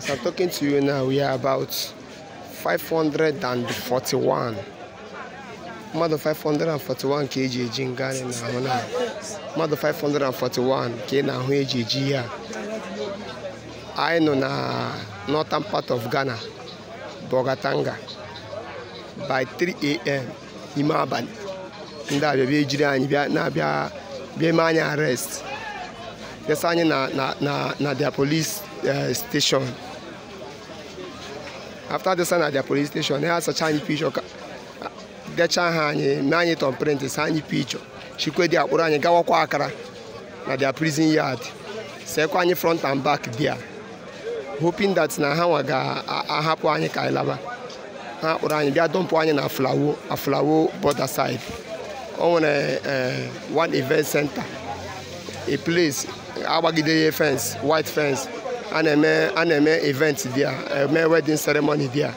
As I'm talking to you now, we are about 541. mmadụ 541 ka eji eji nga anyị na-ahụ na mmadụ 541 ka ị na-ahụ eji eji anyị nọ na northern part of Ghana Bogatanga by 3am ime abalị ndị a bịabịa ejiri anyị na-abịa bịa ma anyị arrest bịasa na na na na their police eh, station after this na their police station ha asacha anyị pichọ decha ha anyị mee anyị tọn print sa anyị pichọ dị akpụrụ anyị gawakwa akara na dia prison yard sekwa anyị front and back bia hoping that na ha nwa ga-ahapụ anyị ka anyị laba ha kpụrụ anyị bịa dọmpụ anyị na aflawo flawo border side o oh, nwere uh, uh, one event center a place agbagide ya fence white fence a na-eme a na-eme event a eme wedding ceremony a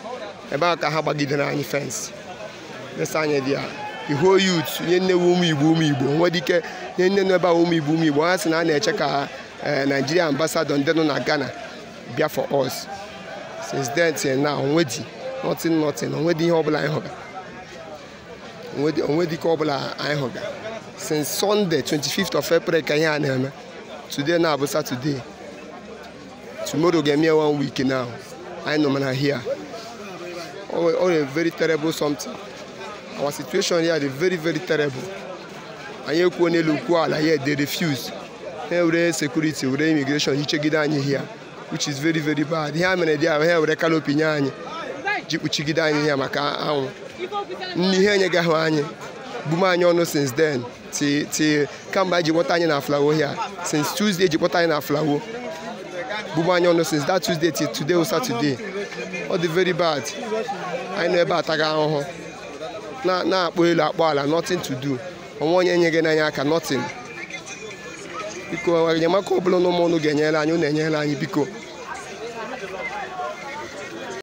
ebe a ka ha gbagidere anyị fensị fensị anyị a ihuo youth nye nne nnewu ụmụ igbo nwere ike nye nne nọ ebe ahụ ụmụ igbo ha sị na a na-eche ka e, Nigeria ambassador ndị nọ na Ghana bịa for us since then till now onwedi nothing nothing onwedi ihe ọbụla anyị hụga onwedi ike ọbụla anyị hụga since Sunday 25th of April ka ihe a na-eme today na-abụ Saturday Tomorrow get me one week now. I know man here. All, all a very terrible something. Our situation here is very, very terrible. And you can look while here they refuse. Every security, every immigration, you check it down here, which is very, very bad. Here many they are here with a canopy check it down here maka ahụ. Nni ihe anyị gaghị anyị. Bume anyị ọnụ since then. Ti ti kemgbe anyị ji kpọta anyị na flawo here. Since Tuesday ji kpọta anyị na flawo. Bubanyono since that Tuesday till today or Saturday ọ dị very bad anyị nọ ebe ataghị ahụhụ na-akpọ elu akpọ ala nothing to do onwe onye nye gị n'anya aka nothing biko enyemaka ọbụla bụla n'ụmụ ụnụ ga-enyere anyị na enyere anyị biko